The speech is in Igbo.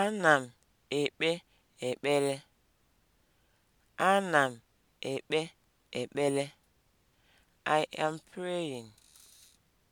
Ana m ekpe ekpere. Ana m ekpe ekpere. I am praying.